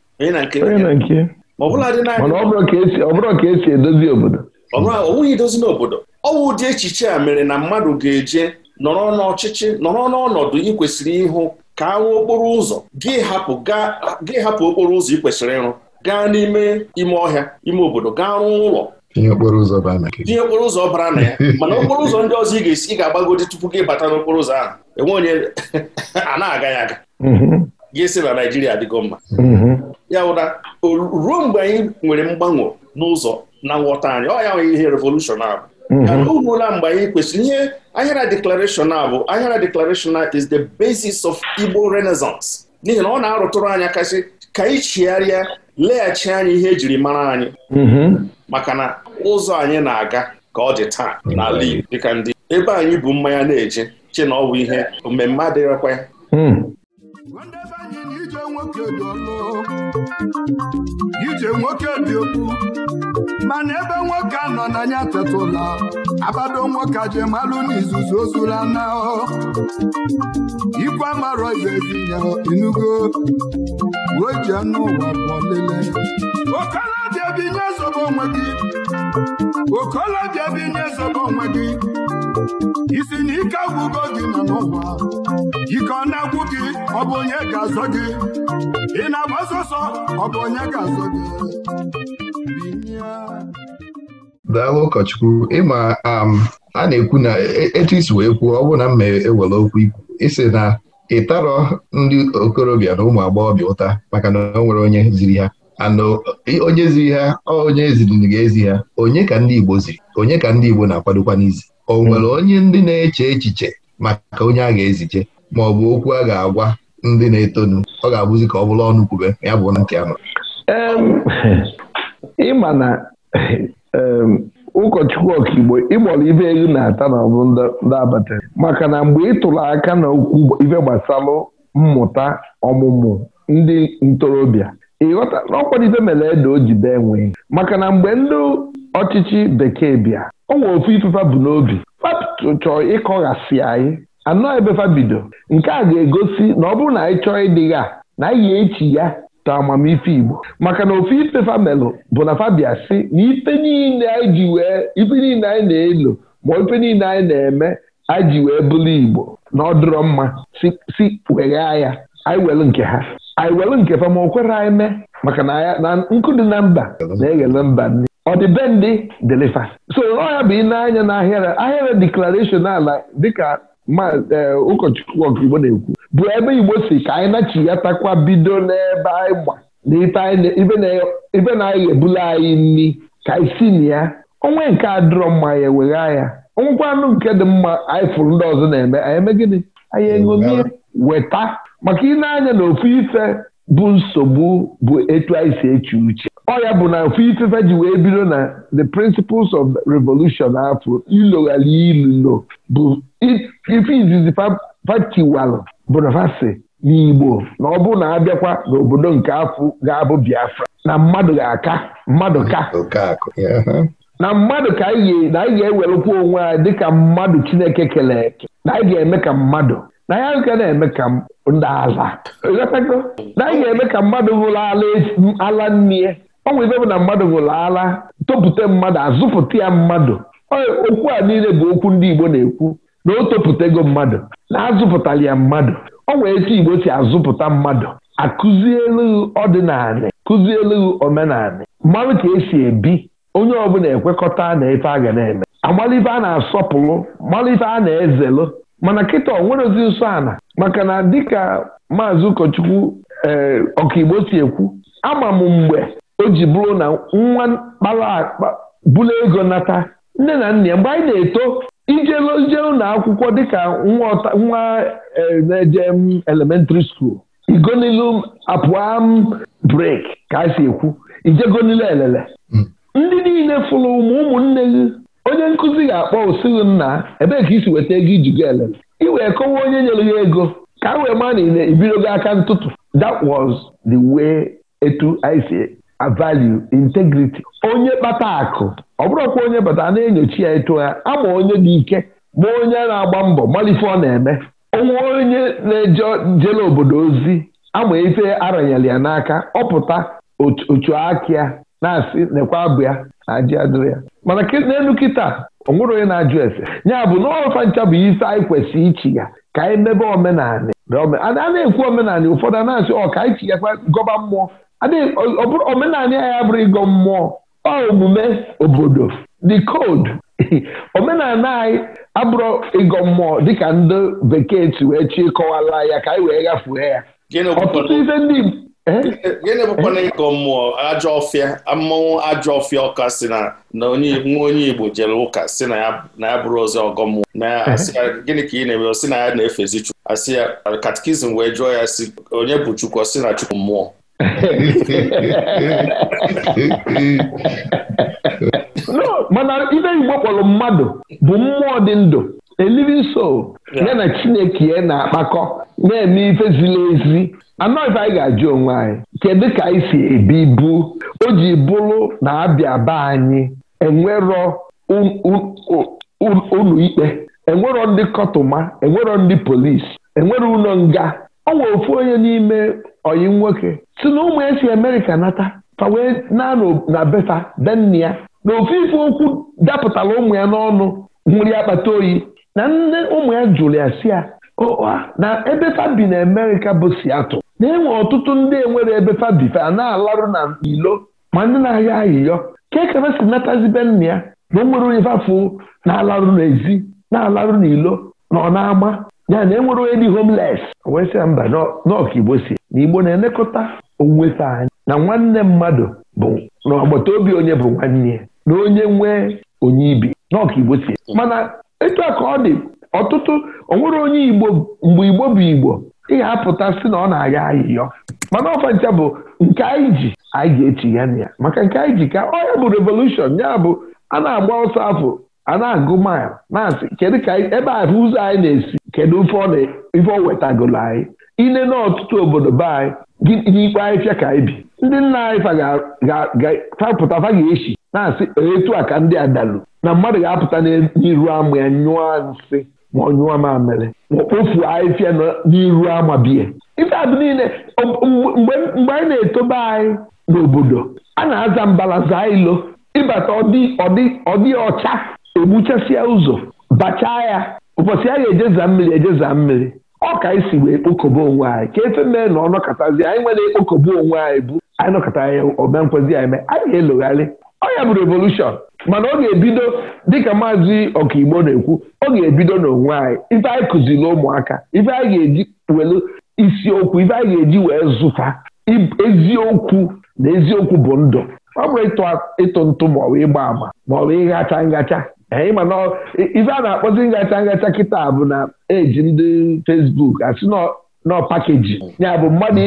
ka esi edozi obodo edozi n'obodo ọwụ dị ụdị echiche a mere na mmadụ ga-eje nọrọ n'ọchịchị nọrọ n'ọnọdụ ị kwesịrị ịhụ ka ahụ okporo ụzọ gị hapụ okporo ụzọ ị kwesịrị ịrụ gaa n'ime ime ọhịa ime obodo gaa rụọ ụlọ tinye okporo ụzọ bara na ya [laughs] mana okporo ụzọ ndị ọzọ ị ga-esi ị ga-agbagodi tupu gị bata n'okporo ụzọ ahụ enwe onye [laughs] a na-aga ya aga mm-hmm. ga-esi na Naịjirịa adịgo mma mm-hmm. ya ụda ruo mgbe anyị nwere mgbanwe n'ụzọ na nghọta anyị ọ ya nwere ihe revolushọn abụ mm-hmm. ruola mgbe anyị kwesịrị ihe ahịara deklarashọn a bụ ahịara deklarashọn is the basis of Igbo Renaissance n'ihi na ọ na-arụtụrụ anya kasị ka anyị chigharịa leghachi anyị ihe ejiri mara anyị mhm. maka na ụzọ anyị na-aga ka ọ dị taa n'ala Igbo dịka ndị ebe anyị bụ mmanya na-eje che na ọ bụ ihe mmemme adịghịkwa ya hmm. nwoke dị ọnụ ije nwoke dị okwu mana ebe nwoke anọ n'anya tetụla abado nwoke je malụ n'izuzu ozula na ikwe amarọ ibebi ya enugo uwe ji anụ ụwa pụọ lele okolobịa bi nye zobo onwe gị okolobịa bi nye zobo onwe gị isi na ike agwụgo gị nọ n'ụwa ike ọ na-agwụ gị ọ bụ onye ga-azọ gị ị na-agba sọsọ ọ bụ onye ga-azọ gị daalụ ụkọchukwu ịma um, a na-ekwu na e, etu isi wee kwuo ọ bụrụ na m ewere e okwu ikwu isi na ịtarọ ndị okorobịa na ụmụ agbọghọbịa ụta maka na o nwere onye ziri ha anọ uh, onye ziri ha onye eziri ga-ezi ha onye ka ndị Igbo ziri onye ka ndị Igbo na-akwadokwa n'izi o nwere onye ndị na-eche echiche maka onye a ga-eziche ma ọ bụ okwu a ga-agwa ndị na-etonu ọ ga-abụzi ka ọ bụrụ ọnụ kwube ya bụ nke anọ. ịma na ụkọchukwu ọkaigbo ịgbọrọ ibe elu na-ata na ọbụ ndị abatara maka na mgbe ị aka na okwu ibe gbasara mmụta ọmụmụ ndị ntorobịa ịghọta na ọkwadite mere edo o jide enwe maka na mgbe ndị ọchịchị bekee bịa o nwere ofu ifefa bụ n'obi chọọ ịkọghasị anyị anọ fabido nke a ga-egosi na ọ bụrụ na anyị chọọ ịdịgha na anyị echi ya ta amamife Igbo maka na ofu ifefa melụ bụ na fabia si na ife niile anyị ji wee ife niile anyị na-elo ma ife niile anyị na-eme anyị ji wee bụrụ Igbo na ọ dụrọ mma si weghaa ya anyị welu nke ha anyị were nke ma o kwere anyị mee maka na nkụ dị uh, na mba na-eghele mba nri ọ dị be ndị so bụ ịna-anya na ahịara ahịara ala dịka ụkọchukwu ọkaigbo na-ekwu bụ ebe igbo si ka anyị nachi ya takwa bido n'ebe anyị gba na ibe na-anyị ebula anyị nri ka anyị na ya onwe nke a mma ya ewegha ya ọnwụkwa anụ nke dị mma anyị fụrụ ndị ọzọ na-eme anyị eme gịnị anyị eṅomie weta maka ị na-anya na ofu ife bụ nsogbu bụ etu anyị si eche uche ọ ya bụ na ofu ifefe ji wee bido na the principles of revolution afọ ịlụ ilulo bụ ife izizi fatiwalụ bụ na n'Igbo na ọ bụ na abịakwa n'obodo nke afọ ga-abụ Biafra na mmadụ ga-aka mmadụ ka na mmadụ ka anyị na anyị ga onwe anyị dịka mmadụ Chineke kere eke anyị ga-eme ka mmadụ na ya nke na-eme ka ndị aza na anyị ga-eme ka mmadụ hụrụ ala nne ọnwa ibe bụ na mmadụ hụrụ ala topụta mmadụ azụpụta ya mmadụ okwu a niile bụ okwu ndị Igbo na-ekwu na o topụtago mmadụ na azụpụtara ya mmadụ ọnwa etu Igbo si azụpụta mmadụ akụzielu ọdịnala kụzielu omenala mmanụ ka esi ebi onye ọbụla ekwekọta na ife a ga na-eme amalite a na-asọpụrụ mmalite a na ezelụ mana kịta ọ nwerezi nso ala maka na dịka maazị ụkọchukwu ee eh, ọkaigbo si ekwu ama m mgbe o ji bụrụ na nwa kpara bụla ego nata nne na nna ya mgbe anyị na-eto ijele ụlọ akwụkwọ dịka nwa eh, na-eje mm, elementịrị skuul igonilu m brek ka a si ekwu ijegonile elele hmm. ndị niile fụrụ ụmụnne gị onye nkụzi ga-akpọ osighi nna ebee ka isi weta ego iji go elele ị wee kọwa onye nyere ya ego ka a wee maa na ibidogo aka ntụtụ that was the way etu anyị si value integrity onye kpata akụ ọ bụrụkwa onye bata na-enyochi ya etu ya ama onye dị ike ma onye na-agba mbọ malife ọ na-eme onwe onye na-eje jele obodo ozi ama ife aranyela ya n'aka ọ pụta otu akịa na-asị nekwa abụ ya na adịrị ya mana n'elu kịta ọnwụrụ onye na-ajụ ese ya bụ na ọfa ncha bụ isi anyị kwesịrị ichi ya ka anyị e mebe omenanị a na-ekwu omenanị ụfọdụ a e na-asị ọ ka anyị chinyekwa gọba mmụọ omenanị anyị abụrụ ịgọ mmụọ ọ omume obodo the code [laughs] omenala anyị abụrụ ịgọ mmụọ dịka ndị bekee si wee chi kọwala ya ka anyị e wee ghafuo ya ọtụtụ ife ndị Eh? gịnị bụkwana eh? ịkọ mmụọ ajọ ọfịa mmọnwụ ajọ ọfịa ọka si na nwa onye Igbo jere ụka si na ya bụrụ ozi ọgọ mmụọ eh? gịnị ka ị na-eme si na ya na-efezi Chukwu asị ya katikizim wee jụọ ya si onye bụ Chukwu si na Chukwu mmụọ [laughs] mana ibe Igbo kpọrọ mmadụ bụ mmụọ dị ndụ a living ya na Chineke na-akpakọ na-eme ife ziri ezi anọghịba anyị ga-ajụ onwe anyị kedu ka anyị si ebi ibu o ji bụrụ na abịa be anyị enwerọ ụlọ ikpe enwerọ ndị kọtụma enwerọ ndị polisi enwero ụlọ nga ọ nwere ofu onye n'ime ọyị nwoke si na ụmụ ya si Amerịka nata fa wee na befa denna ya na ofu ife okwu dapụtara ụmụ ya n'ọnụ nwụrụ ya kpata oyi na nne ụmụ ya jụrụ ya si ya na ebe fa bi na amerika bụ siatụ na-enwe ọtụtụ ndị enwere ebe fabife a na-alarụ na ilo ma ndị na-ahịa ahịyọ kee ka si natazibe nna ya na o onye fafu na-alarụ n'ezi na-alarụ n'ilo na ọ na-ama ya na enwere onye dị homeles wee sị mba n'ọkigbo si na igbo na-elekọta onwuwefe anyị na nwanne mmadụ bụ na obi onye bụ nwanne ya na onye nwee onye ibi n'ọkigbo si mana etu a ka ọ dị ọtụtụ onwere onye igbo mgbe igbo bụ igbo ihe apụta si na ọ na aga ayịyọ mana ọfancha bụ nke anyị ji anyị ga-echi ya na ya maka nke anyị ji ka ọ ya bụ revolushon ya bụ a na-agba ọsọ afọ a na-agụ mil na-asị kedu ka ebe a ụzọ anyị na-esi kedu ife ọ wetagolo anyị ine n'ọtụtụ obodo be anyị n'ikpe anyị fịa ka anyị bi ndị nna anyị fapụta fa ga-echi na-asị etu a ka ndị adalu na mmadụ ga-apụta n'iru ama ya nyụọ nsị ma ọnyụọ mamịrị ma ahịfịa n'iru ama biya ife adị niile mgbe anyị na-etobe anyị n'obodo a na-aza mbalaza ilo ịbata ọdị ọcha egbuchasịa ụzọ bachaa ya ụbọchị a ga-ejeza mmiri ejeza mmiri ọ ka anyị si wee kpokọba onwe anyị ka efe mee na ọnọkọtazi anyị nwere ekpokobe onwe anyị bụ anyị nọkọta ya omenkwezi anyị mee anyị ga-elogharị ọ ya bụ revolushọn mana ọ ga-ebido dịka maazị ọkaigbo na-ekwu ọ ga-ebido n'onwe anyị ife anyị kụziri ụmụaka ife anyị ga-eji welu isiokwu ife anyị ga-eji wee zụta eziokwu na eziokwu bụ ndụ ọ bụrụ ịtụ ntụ maọbụ ịgba àmà maọbụ ịghacha ngacha ịma na ife a na-akpọzi ngacha ngacha kịta bụ na eji ndị fesbuk asị nọ pakeji ya bụ mmadụ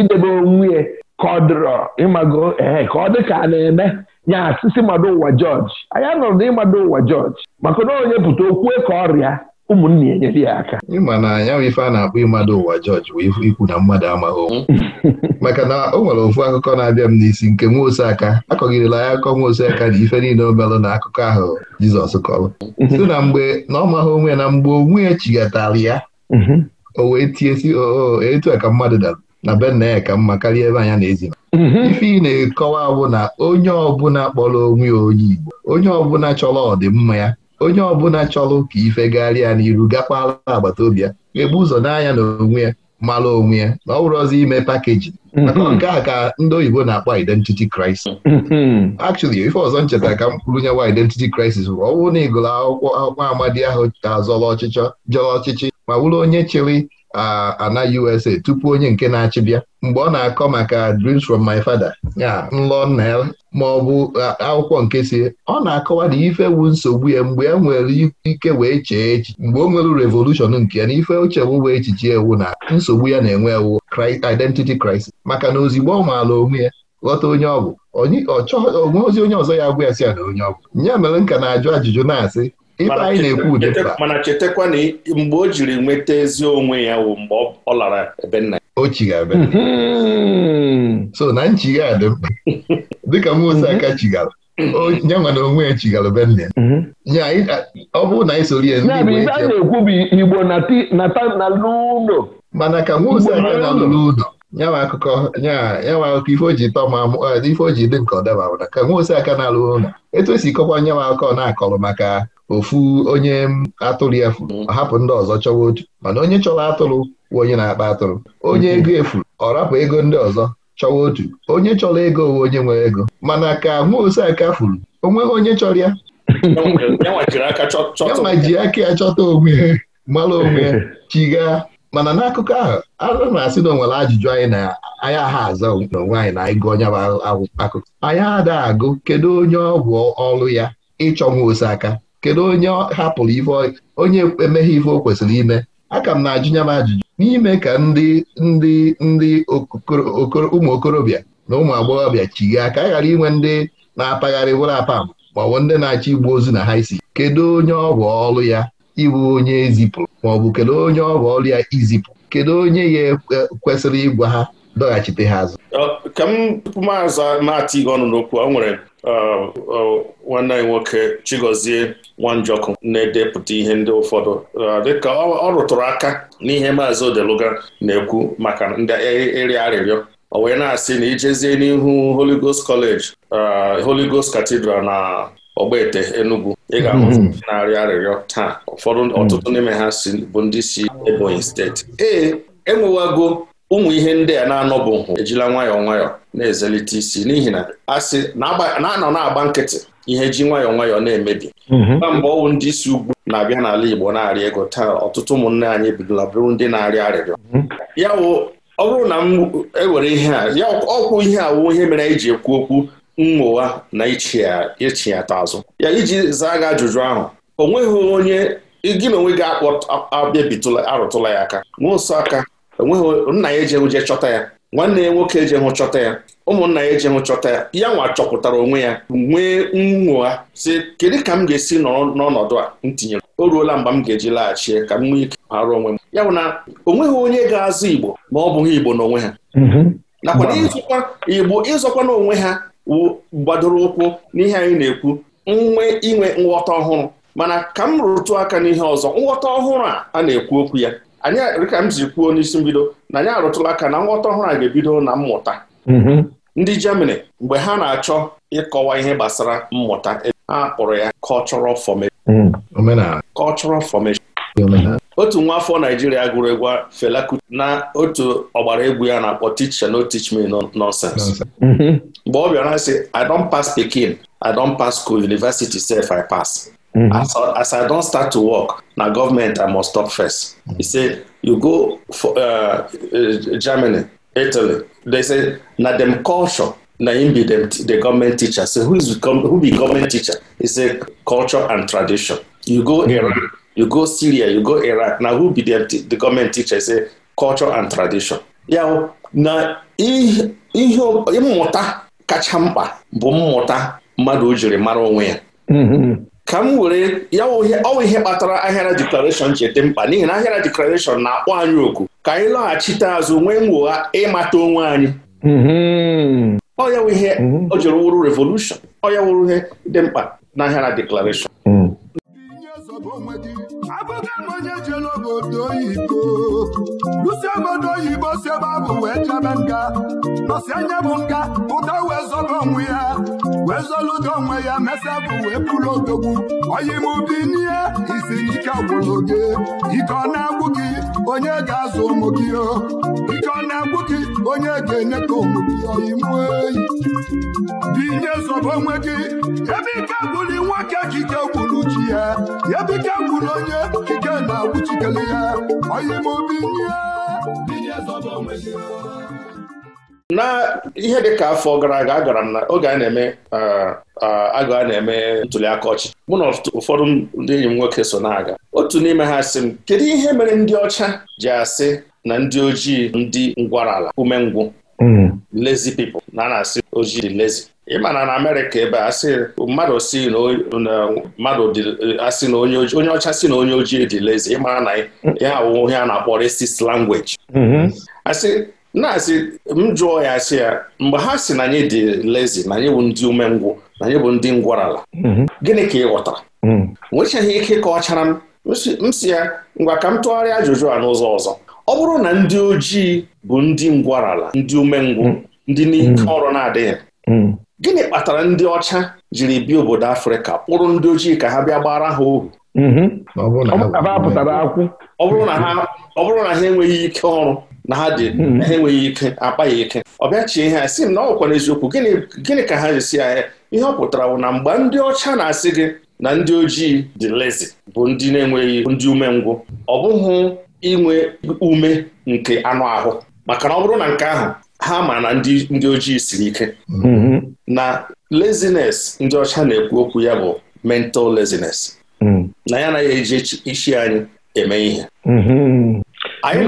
idebe onwe ya ịmago ee eh, ka ọ dị ka a na-eme nya asịsị mmadụ ụwa jọji anyị anọrọ na ịmado ụwa jọji maka na onye pụta okwue ka ọrịa ụmụnne ya enyere ya aka ịma na ya bụ ife a na-akpọ ịmado ụwa jọji wee ikwu na mmadụ amaghị onwe [laughs] maka na o nwere ofu akụkọ na-abịa m n'isi nke nwa oseaka akọgidela ya akọ nwa oseaka na ife niile o melụ na akụkọ ahụ Jizọs kọrọ mm-hmm. si na mgbe na ọ maghị onwe na mgbe onwe ya chigatara ya mm-hmm. o wee tie si oo etu a ka mmadụ dara na benne ka mma karịa ebe anya na-ezi mhm. ife ị na-ekọwa bụ na onye ọbụla kpọrọ onwe onye Igbo onye ọbụla chọrọ ọdịmma ya onye ọbụla chọrọ ka ifegharịa n'iru gakwala agbata obi ya ebu ụzọ n'anya na onwe ya mara onwe ya na ọ bụrụ ọzọ ime pakeji mhm. maka nke a ka ndị oyibo na-akpọ identity crisis mhm. actually ife ọzọ ncheta ka m kwuru nyewa identity crisis bụ ọ na ị akwụkwọ akwụkwọ amadi ahụ azọrọ ọchịchọ jọrọ ọchịchị ma wụrụ onye chịrị ana USA tupu onye nke na-achị bịa mgbe ọ na-akọ maka Dreams from My Father ya nlọ nna ya ma ọ bụ akwụkwọ nke si ọ na-akọwa na ife wu nsogbu ya mgbe e nwere ike wee chee echi mgbe o nwere revolushon nke ya na ife ochewu wee echiche ewu na nsogbu ya na-enwe ewu identity crisis maka na ozigbo ọ maala onwe ya ghọta onye ọ bụ onwe ozi onye ọzọ ya agwa ya si ya na onye ọ bụ ya mere nka na-ajụ ajụjụ na-asị mana chetakwa na mgbe o jiri nweta ezi onwe ya wụ mgbe ọ lara ebe nna ya o chigara ebe hmm. so na nchigha dị mkpa dịka Musa mhm. aka chigara nye nwa na onwe ya chigara be nne ya mhm. ọ bụrụ na anyị Igbo ya na-ekwu bụ Igbo nata n'ụlọ mana ka Musa aka na n'ụlọ nyawa akụkọ nyawa akụkọ ife o ji tọ ma ife o ji dị nke ọ daba ka Musa aka na-alụ ụlọ etu esi kọkwa nyawa akụkọ na-akọrọ maka ofu onye atụrụ ya furu mm. hapụ ndị ọzọ chọwa otu mana onye chọrọ atụrụ bụ onye na-akpa atụrụ onye mm-hmm. ego efuru ọ rapụ ego ndị ọzọ chọwa otu onye chọrọ ego owe onye nwere ego mana ka nwa ose aka furu onweghị onye chọrọ ya kama ji aka ya chọta onwe mara onwe chiga. mana n'akụkọ ahụ ara na-asị na onwere ajụjụ anyị na anyị ha aza n'onwe anyị na ịgụ onye akụkọ anyị ada agụ kedu onye ọ bụ ọrụ ya ịchọ nwa ose aka kedu onye hapụrụ ife onye emeghe ife o kwesịrị ime aka m na-ajụnya m ajụjụ n'ime ka ndị ndị ndị ụmụ okorobịa na ụmụ agbọghọbịa chigha ka a ghara inwe ndị na-apagharị wụrụ apam maọbụ ndị na-achọ igbu ozu na ha isi kedu onye ọ ọlụ ọrụ ya ịbụ onye ezipụrụ maọbụ kedu onye ọ ọlụ ọrụ ya izipụ kedu onye ya e, e, kwesịrị ịgwa ha dọghachite ha azụ uh, ka m tupu maatị gị ọnụ n'okwu ọ nwere uh, uh, nwanne anyị nwoke Chigozie Nwanjọkụ na-edepụta ihe ndị ụfọdụ dịka ọ rụtụrụ aka n'ihe maazị Odeluga na-ekwu maka ndị ịrị e, arịrịọ o wee na-asị na ijezie n'ihu holigos Ghost College Holy Cathedral na Ogbete Enugu ị ga mm-hmm. na-arịọ arịrịọ taa ụfọdụ mm. ọtụtụ n'ime ha bụ ndị si Ebonyi steeti ee enwewago ụmụ ihe ndị a na-anọbụ hụ ejila nwayọọ nwayọọ na-ezelite isi n'ihi na asị na-anọ na-agba nkịtị ihe ji nwayọọ nwayọọ na-emebi na mhm. mgbe ọnwụ ndị isi ugwu na-abịa n'ala Igbo na-arị ego taa ọtụtụ ụmụnne anyị ebidola bụrụ ndị na-arịọ arịrịọ mhm. ya ọ bụrụ na m ewere ihe a ya ọkwụ ihe awụ ihe mere anyị ji ekwu okwu nwụwa na ichi ya azụ ya iji zaa gị ajụjụ ahụ o nweghị onye gị na onwe gị akpọ abịabitụla arụtụla ya aka n'ụsọ aka enweghị nna ya eji je chọta ya nwanne ya nwoke hụ chọta ya ụmụnna ya ejeghụ chọta ya ya nwa chọpụtara onwe ya nwee nwụgha si kedu ka m ga-esi nọrọ n'ọnọdụ a m tinyere o ruola mgbe m ga-eji laghachie ka m nwee ike arụ onwe m ya bụ na onweghị onye ga-azụ Igbo ma ọ bụghị Igbo n'onwe ha mm-hmm. nakwa ịzụkwa Igbo ịzọkwa n'onwe ha gbadoro ụkwụ n'ihe anyị na-ekwu nwe inwe nghọta ọhụrụ mana ka m rụtụ aka n'ihe ọzọ nghọta ọhụrụ a a na-ekwu okwu ya anyị a m ji kwuo n'isi mbido na anyị arụtụla aka na nghọta ọhụrụ a ga-ebido na mmụta mhm. ndị Germany mgbe ha na-achọ ịkọwa ihe gbasara mmụta ha kpọrọ ya cultural formation mhm. cultural formation otu nwa afọ Naijiria gụrụ egwu Fela na otu ọgbara egwu ya na-akpọ teach and no teach me nonsense mhm. mgbe ọ bịara sị I don pass Pikin I don pass school university self I pass As, mm-hmm. as I don start to work, na government I must talk first. Mm-hmm. He say, you go for uh, uh Germany, Italy, they say na dem culture na im be dem the government teacher. So who is who be government teacher? He say culture and tradition. You go Iraq you go Syria, you go Iraq, na who be dem the government teacher? He say culture and tradition. Yaw na ihe mmụta kacha mkpa bụ mmụta mmadụ ojiri jiri mara onwe ya. Mm-hmm. ka m were ya ọwa ihe kpatara ahịara deklarashọn ji dị mkpa n'ihi na ahịara deklarashọn na-akpọ anyị oku ka anyị lọghachite azụ nwee mwogha ịmata onwe anyị mm-hmm. ọ ya ihe ọ mm-hmm. jụrụ wụrụ revolushọn ọ ya wụrụ ihe dị mkpa na ahịara deklarashọn mm. oge onye jelu obodo oyibo lusi obodo oyibo si ebe abụ wee chebe nga nọsi anya bụ nga ụda wee zọba onwe ya wee zọludo onwe ya mesa bụ wee pụrụ odogwu oyimụbi n'ihe isi ike gwụrụ gị ike ọ na-agwụ gị onye ga-azụ ụmụ gị o ike ọ na-agwụ onye ga-enye ka obodo imu eyi dị ihe zọba onwe gị ebe ike gwụrụ nwoke chike gwuru chi ya ebe ike gwụrụ onye chike na-agwụchikele ya oyimobi ihe zọba onwe gị na ihe dị ka afọ gara aga agara m na oge a na-eme eh, eh, agụ a na-eme ntụliaka ọchịchị mụ na ụfọdụ ndị enyi m nwoke so na-aga otu n'ime ha sị m kedu ihe mere ndị ọcha ji asị na ndị ojii ndị ngwarala umengwụ hmm. lazy people na na-asị ojii lezi. lazy ịmana na Amerịka ebe a mmadụ si na onye ọcha si na onye ojii dị lezi ịmara na ya awụ ihe a na-akpọ racist language hmm. asị na-asị m jụọ ya asị ya mgbe ha si na anyị dị lazy na anyị bụ ndị umengwụ na anyị bụ ndị ngwarala hmm. gịnị ka ị ghọtara nwechaghị ike ka ọ chara m m si ya ngwa ka m tụgharịa ajụjụ a n'ụzọ ọzọ ọ bụrụ na ndị ojii bụ ndị ngwarala ndị umengwụ hmm. ndị n'ike hmm. ọrụ na-adịghị hmm. gịnị kpatara ndị ọcha jiri bịa obodo afrịka kpụrụ ndị ojii ka ha bịa gbara ha ohu ọ bụrụ na ha enweghị ike ọrụ na ha dị ha enweghị ike akpa ya ike ọ bịachie ihe a sị m na ọ gwụkwara eziokwu gịnị ka ha jisi ahịa eh, ihe ọ pụtara bụ na mgbe ndị ọcha na-asị gị na ndị ojii dị lezi bụ ndị na-enweghị ndị umengwụ ọ bụghị inwe ume nke anụ ahụ maka na ọ bụrụ na nke ahụ ha ma na ndị ndị ojii siri ike mm-hmm. na laziness ndị ọcha na-ekwu okwu ya bụ mental laziness mm. na ya anaghị eji isi anyị eme ihe mm-hmm. mm-hmm. anyị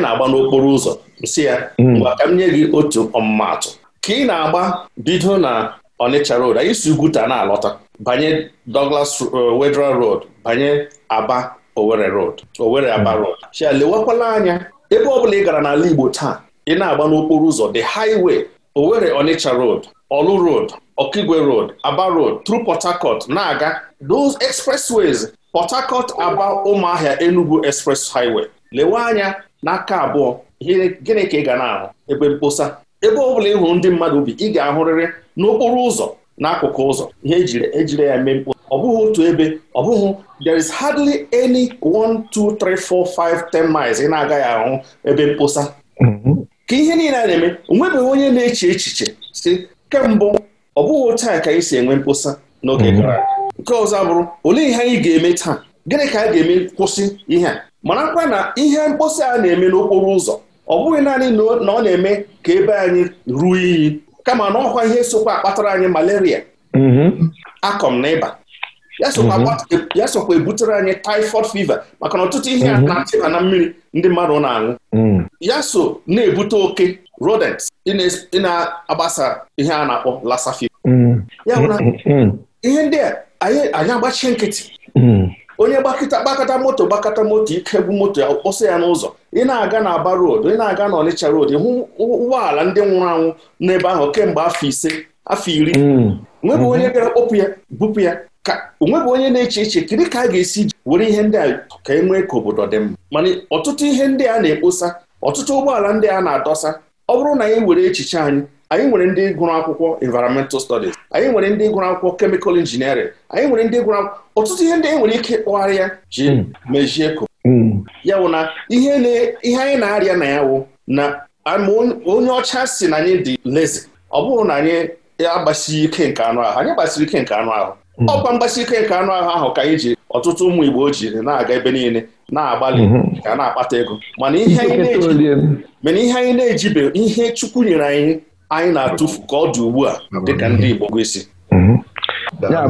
na-agba n'okporo ụzọ nsị ya mm. mgbe ka m nye gị otu ọmụmatụ ka ị na-agba bido na Onitsha Road anyị si Ugwuta na-alọta banye Douglas uh, Wedra Road banye Aba Owerri Road Owerri hmm. Aba Road chia lewakwala anya ebe ọbụla ị gara n'ala Igbo taa ị na-agba n'okporo ụzọ the highway Owerri Onitsha Road Olu Road Okigwe Road Aba Road through Port Harcourt na-aga those expressways Port Harcourt Aba Ụmụahịa Enugu Express Highway lewe anya n'aka abụọ gịnị ka ị ga na-ahụ ebe mkposa ebe ọbụla ị hụrụ ndị mmadụ bi ị ga-ahụrịrị n'okporo ụzọ n'akụkụ ụzọ ihe ejiri e ya mee mkposa ọ bụghị otu ebe ọ bụghị there is hardly any one two three four five ten miles ị na-agaghị ahụ ebe mposa. Mm-hmm. ka ihe niile a na-eme onwebeghị onye na-eche echiche si kemgbe ọ bụghị otu a ka anyị si enwe mkposa n'oge mm-hmm. gara nke ọzọ abụrụ olee ihe anyị ga-eme taa gịnị ka a ga-eme kwụsị ihe a kwa na ihe mkpọsa a na-eme n'okporo ụzọ ọ bụghị naanị na ọ na-eme ka ebe anyị ruo iyi kama na ọkwa ihe sokwa akpatara anyị malaria mm-hmm. akọm na ịba ya sokwa mhm. ebutere anyị typhoid fever maka na ọtụtụ ihe mhm. a na-achịba na mmiri ndị mmadụ na-aṅụ mm. ya so na-ebute oke rodents ị na-agbasa ihe a na-akpọ lasa fever mm. ya bụ na mm, ihe ndị a anyị agbachie nkịtị onye gbakọta gbakọta moto gbakọta moto ike bụ moto kpọsa ya n'ụzọ ị na-aga na Aba road ị na-aga na Ọnịcha roodu hụ ụgbọala ndị nwụrụ anwụ n'ebe ahụ kemgbe afọ ise afọ iri nwebụ mhm. onye bịara kpọpụ ya bupụ ya ka onweghị onye na-eche eche kedu ka a ga-esi were ihe ndị a ka e nwee ka obodo dị mma mana ọtụtụ ihe ndị a na-ekposa ọtụtụ ụgbọala ndị a na-adọsa ọ bụrụ na anyị were echiche anyị anyị nwere ndị gụrụ akwụkwọ environmental studies anyị nwere ndị gụrụ akwụkwọ chemical engineering anyị nwere ndị gụrụ akwụkwọ ọtụtụ ihe ndị anyị nwere ike ịkpọgharị ya ji hmm. mejie ko hmm. ya bụ na ihe anyị na-arịa na ya wụ na onye ọcha si na anyị dị lezi ọ bụrụ na anyị agbasighi ike nke anụ ahụ anyị gbasiri ike nke anụ ahụ Hmm. ọkwa mgbasi ike nke anụ ahụ ahụ ka anyị ji ọtụtụ ụmụ Igbo jiri na-aga ebe niile na-agbalị hmm. ka na-akpata ego mana ihe anyị na-ejibe ihe Chukwu nyere anyị anyị na-atụfu ka ọ dị ugbu a dịka ndị Igbo gwesi hmm. na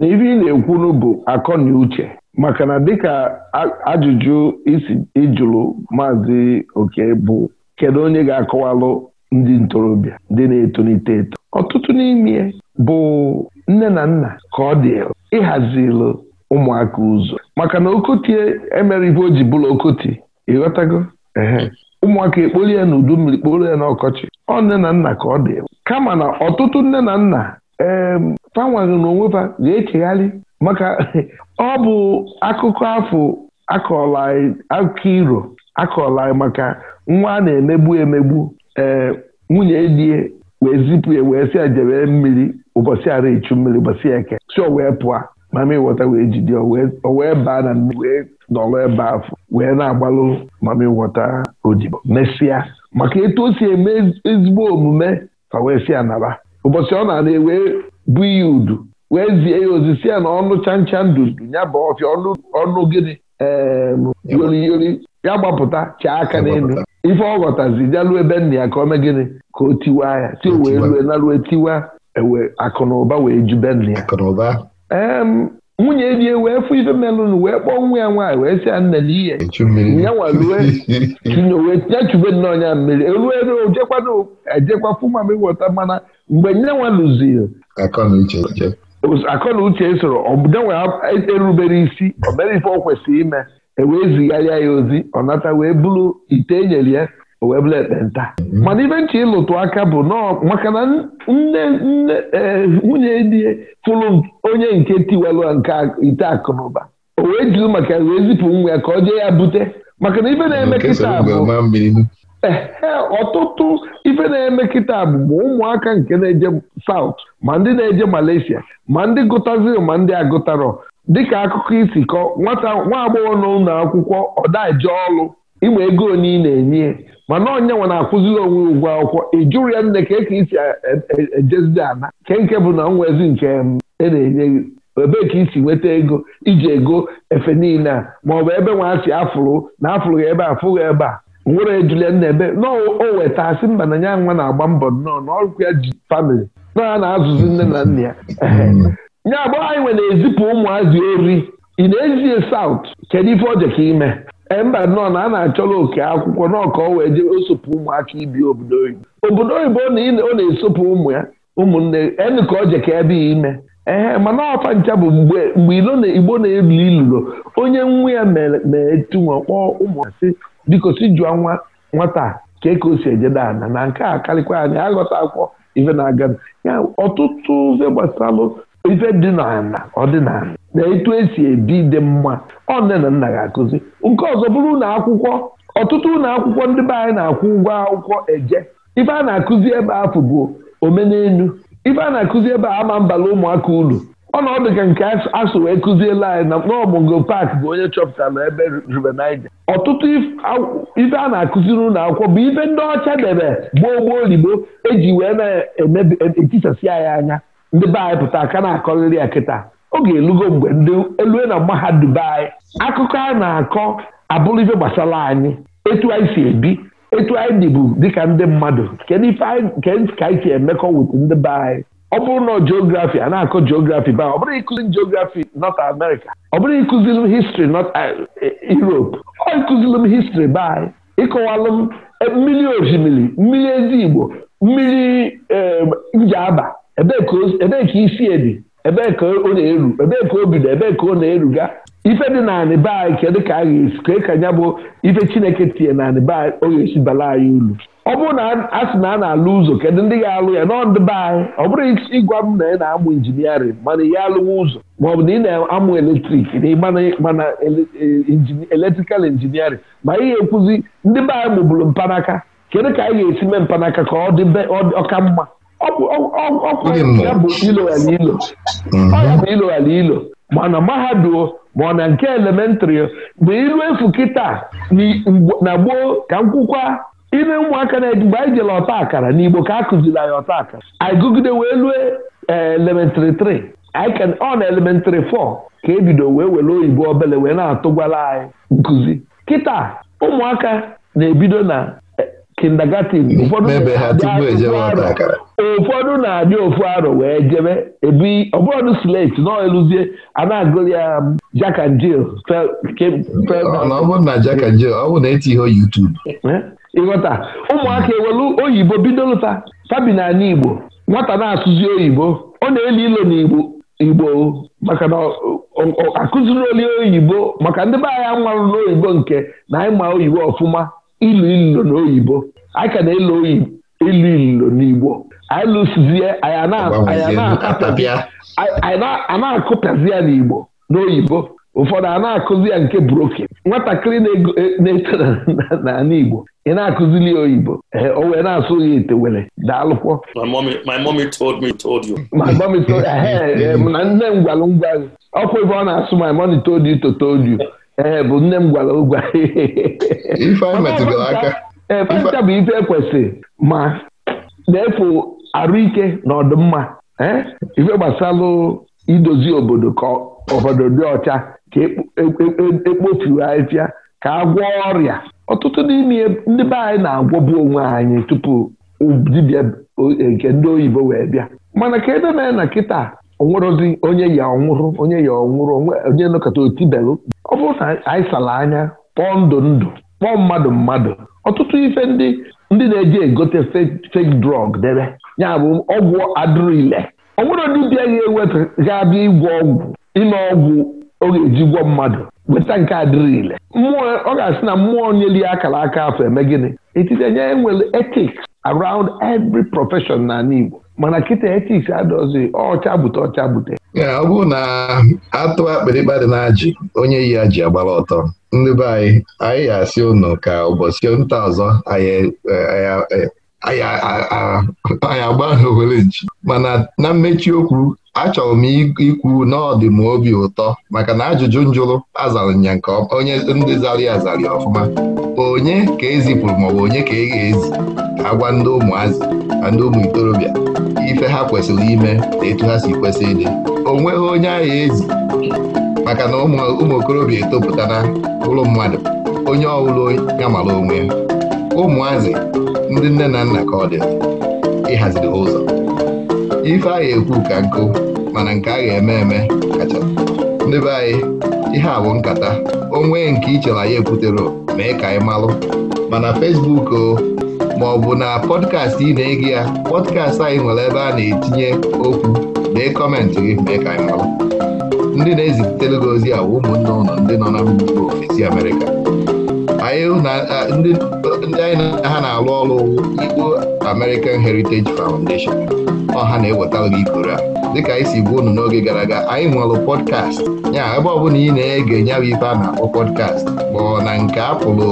ibe ị na-ekwunu bụ akọ na uche maka na dịka ajụjụ isi ịjụrụ maazị oke bụ kedu onye ga-akọwalụ ndị ntorobịa ndị na-etolite eto ọtụtụ n'ime bụ nne na nna ka ọ dị ịhazilụ ụmụaka ụzọ maka na okotie emere ibe o ji bụrụ okoti ịghọtago ehe ụmụaka ekpori ya n'udu mmiri kporo ya n'ọkọchị ọ nne na nna ka ọ dị kama na ọtụtụ nne na nna ee fanwaghị n'onwe fa ga-echegharị maka [laughs] ọ bụ akụkọ afọ akọla iro akọla maka nwa a na-emegbu emegbu ee nwunye die wee zipụ ya wee si ya jebe mmiri ụbọchị ara echu mmiri ụbọchị eke si o wee pụọ ma mami e wee jide o wee baa na mmiri wee nọrọ ebe afọ wee na-agbalụ mami e wọta odibo mesịa maka etu o si eme ezigbo omume ka wee si ya naba ụbọchị ọ na-ana ewee bụ ya udu wee zie ya ozi ya na ọnụ chancha ndundu ya bụ ọfịa ọnụ gịnị ee yori ya gbapụta chee aka n'elu ife ọ ghọtazi bịaruo ebe nna ya ka o mee gịnị ka o tiwa ya si o wee rue narue tiwa ewe akụnụba wee ju be nna ya ee nwunye di wee fụ ife melụnụ wee kpọọ nwa ya nwaanyị wee si ya nne na ihe ya [laughs] chube nnọọ ọnya mmiri elu elu ojekwana ejekwa fụ m ịghọta mana mgbe nye nwalụziri akọ na uche e soro ọbụda nwe erubere isi ọ ife o kwesịrị ime ewee zigharịa ya ozi ọ nata wee bụrụ ite enyere ya o wee bụrụ ekpenta mhm. mana ibe nche ịlụtụ aka bụ nọọ maka na nne nne e, nwunye di fụrụ onye nke tiwelụ nke ite akụnụba o wee jụrụ maka wee zipụ nwa ya ka ọ jee ya bute maka na ife na-eme kịta bụ ọtụtụ ife na-eme kịta bụ ma ụmụaka nke na-eje saut ma ndị na-eje Malaysia ma ndị gụtaziri ma ndị agụtarọ dịka akụkọ isi kọ nwata nwa agbọghọ nọ ụlọ akwụkwọ ọdaje ọlụ ịma ego onye ị na-enye mana onye nwa na-akwụziri onwe ugwu akwụkwọ ịjụrụ ya nne ka eke isi ejezide e, e, ana nke nke bụ na nwezi nke e na-enye gị ebee ka isi nweta ego iji ego efe niile a maọbụ ebe nwaasị afụrụ na afụrụ ebe a fụghị ebe a nwere ejulie nna ebe na o weta asị mba na ya nwa na-agba mbọ nnọọ na ọrụkwa ya ji famịlị na a na-azụzi nne na nna ya hmm. nye agbọghọ anyị nwere na-ezipụ ụmụazị ori ị na-ezie saut kedu ife ọjọ ka ime mba nọ na a na-achọla oke akwụkwọ n'ọka o wee jee osopụ ụmụaka ibi obodo oyibo obodo oyibo ọ na-esopụ ụmụ ya ụmụnne enu ka ọjọ ka ebe ime ehe mana ọfa ncha bụ mgbe mgbe igbo na-elu ilulo onye nwa ya meetunwe kpọọ ụmụasị biko si jụọ nwa nwata ka ka o si ejeda ana na nke a karịkwa anya aghọta akwụkwọ ife na-aga ya ọtụtụ ụzọ gbasalụ ife dị n'ala ọdịnala na etu esi ebi dị mma ọ nne na nna ga-akụzi nke ọzọ bụrụ ụlọ akwụkwọ ọtụtụ ụlọ akwụkwọ ndị be anyị na-akwụ ụgwọ akwụkwọ eje ife a na-akụzi ebe afọ bụ omenelu ife a na-akụzi ebe ama mbala ụmụaka ulu ọnọdụ ka nke asụ wee kụziela anyị na mkpọọmụngo bụ onye chọpụtara ebe rubenaije ọtụtụ ife a na-akụziri ụlọ akwụkwọ bụ ife ndị ọcha debe gboo gboo ligbo eji wee na e e, e anyị anya ndị be anyị pụta aka na-akọrịrị ya kịta oge elugo mgbe ndị elue na mahadum anyị akụkọ a na-akọ abụrụife gbasara anyị etu anyị si ebi etu anyị dịbu dịka ndị mmadụ ka anyị si emekọ wit ndị be anyị ọ bụrụ na geografi a na-akọ geografi ba ọ bụrụ ịkụzi geografi America ọ bụrụ ịkụzilụ histri North eh, eh, Europe ọ ịkụzilụ m histri be anyị ịkọwalụ m eh, mmiri osimiri mmiri ezi Igbo mmiri njiaba ebee ka isi e ebe ebee ka ọ na-eru ebee ka o bido ebee ka ọ na-eruga ife dị naanị be anyị kedu ka a ga-esi kee ka nya bụ ife chineke tinye nanị be anyị ọ ga-esi bala anyị uru ọ bụrụ na a sị na a na-alụ ụzọ kedu ndị ga-alụ ya n'ọdụ be anyị ọ bụrụ ịgwa m na ị na-amụ injiniarịn mana ya alụwa ụzọ bụ na ị na-amụ eletrik mana eletrikal injiniarịn ma ihe e- ga-ekwuzi ndị be anyị mụbụrụ mpanaka kedu ka anyị ga-esi mee mpanaka ka ọ dị ọka mma ọkwụya bụ ilo mhm. bụ mana mahadum ma ọ na nke elementrị bụ ilu efu kịta na gboo ka nkwụkwa ime ụmụaka na mgbe anyị jere ọta akara n'igbo ka a kụziri anyị ọta akara anyị gụgide wee lue eh, elementrị 3 ọ na elementrị fọ ka ebido wee were oyibo obele wee na-atụgwala anyị nkụzi kịta ụmụaka na-ebido na kindergarten ụfọdụ na-adị ofu arọ wee jebe ebi ọbụrụ slate nọ eluzie a na-agụrụ ya um, Jack and Jill e ịghọta ụmụaka ewelu oyibo bido lụta fabi na Igbo nwata na-asụzi oyibo ọ na-eli ilo n'Igbo Igbo maka na akụziri oli oyibo maka ndị be anyị anwarụ n'oyibo nke na anyị ma oyibo ọfụma ilu ilo n'oyibo anyị ka na-elo ilu ilo n'igbo anyị lụsizie akụpịazi ya n'igbo n'oyibo ụfọdụ a na-akụzi ya nke broken nwatakịrị e, na-eto n'ala Igbo ị na-akụzili ya oyibo ee o wee na-asụ ya etewere daalụkwọ my mommy told me told you my told [laughs] na nne m gwalụ ngwa ọkwa ebe ọ na-asụ my money told you to told you ee eh, bụ nne m gwara ụgwa ee eh, bụ ife ekwesị ma na-efu arụike na ọdịmma eh, ife gbasalụ idozi obodo ka obodo dị ọcha ka ekpofuo ahịfịa ka a gwọọ ọrịa ọtụtụ n'ime ndị be anyị na-agwọbu onwe anyị tupu dibia nke ndị oyibo wee bịa mana ka edemee na kịta onwerozi onye ya ọnwụrụ onye ya ọnwụrụ onye nọkọta otibelụ ọ bụrụ na anyị sara anya kpọọ ndụ ndụ kpọọ mmadụ mmadụ ọtụtụ ife ndị ndị na-eji egote fake drug debe ya bụ ọgwụ adịrịle onwere ndị bịa ya ewepụ ga-abịa ịgwọ ọgwụ ime ọgwụ ọ ga-eji gwọ mmadụ weta nke adịrịle mmụọ ọ ga-asị na mmụọ nyeli akara aka afọ eme gịnị etiti nye nwere ethics around every profession na Igbo mana kịta etis adọzi ọcha bute ọcha bute ọ bụrụ na atụ akpịrịkpa dị na ajị onye yi ajị agbara ọtọ ndị be anyị anyị ga-asị unu ka ụbọchị nta ọzọ anyị agba ha mana na mmechi okwu achọrọ m ikwu n'ọdị m obi ụtọ maka na ajụjụ njụrụ azara ya nke onye ndị zara ya ọfụma onye ka ezipụrụ maọbụ onye ka eghe ezi ka agwa ndị ụmụazị na ndị ụmụ ikorobịa ife ha kwesịrị ime na etu ha si kwesị ịdị o nweghị onye agha ezi maka na ụmụ okorobịa etopụtara ụlọ mmadụ onye ọbụla ya mara onwe ụmụazị ndị nne na nna ka ọ dị ịhaziri ụzọ ife agha ekwu ka nkụ mana nke a ga-eme eme kacha ndị be anyị ihe a bụ nkata onwe nke ichela ya ekwutere mee ka anyị malụ mana Facebook o maọbụ na pọdkast ị na-ege ya pọdkast anyị nwere ebe a na-etinye okwu dee kọmentị gị mee ka anyị malụ ndị na-ezitere gị ozi ụmụnne ụlọ ndị nọ na mba ofesi Amerịka ndị anyị na ha na-alụ ọrụ Igbo American Heritage Foundation ọha na eweta gị ikoro a dịka anyị si gbuo unu n'oge gara aga anyị nwere podcast ya ebe ọbụla ị na-ege nyabụ ife a na-akpọ pọdkast ma ọ na nke apụlụ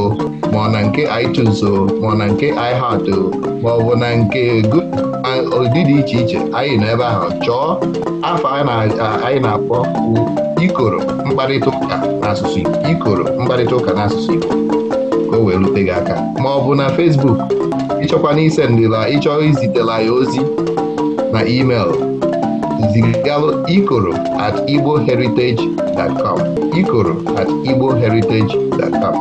ma ọ na nke iTunes ma ọ na nke iHeart ma ọ bụ na nke ụdị dị iche iche anyị nọ ebe ahụ chọọ afọ anyị na-akpọ ikoro mkparịta ụka na asụsụ ikoro mkparịta ụka asụsụ Igbo erute gị aka ma ọ bụ na Facebook ịchọkwa na isendịla ịchọ izitela ya ozi na email zigalụ ikoro at igboheritage.com ikoro at igboheritage.com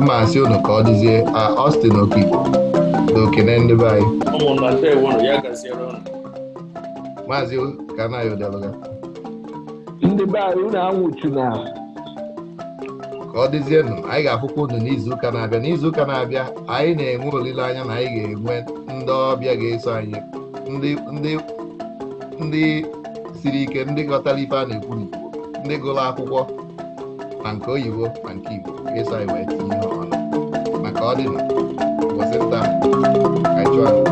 mma asị unu ka ọ dịzie Austin Okigbo na okene ndị be anyị maazị Kanayo ndị be anyị unu anwụchuna ka ọ dịzienụ anyị ga-afụkwa unu n'izuụka na-abịa n'izuụka na-abịa anyị na-enwe olileanya na anyị ga-enwe ndị ọbịa ga-eso anyị ndị siri ike ndị ghọtara ife a na-ekwu n'igbo ndị gụrụ akwụkwọ na nke oyibo na nke igbo ga-eso anyị wee tinye ihe ọnụ maka ọdịna ụbọchị nta ka chụọ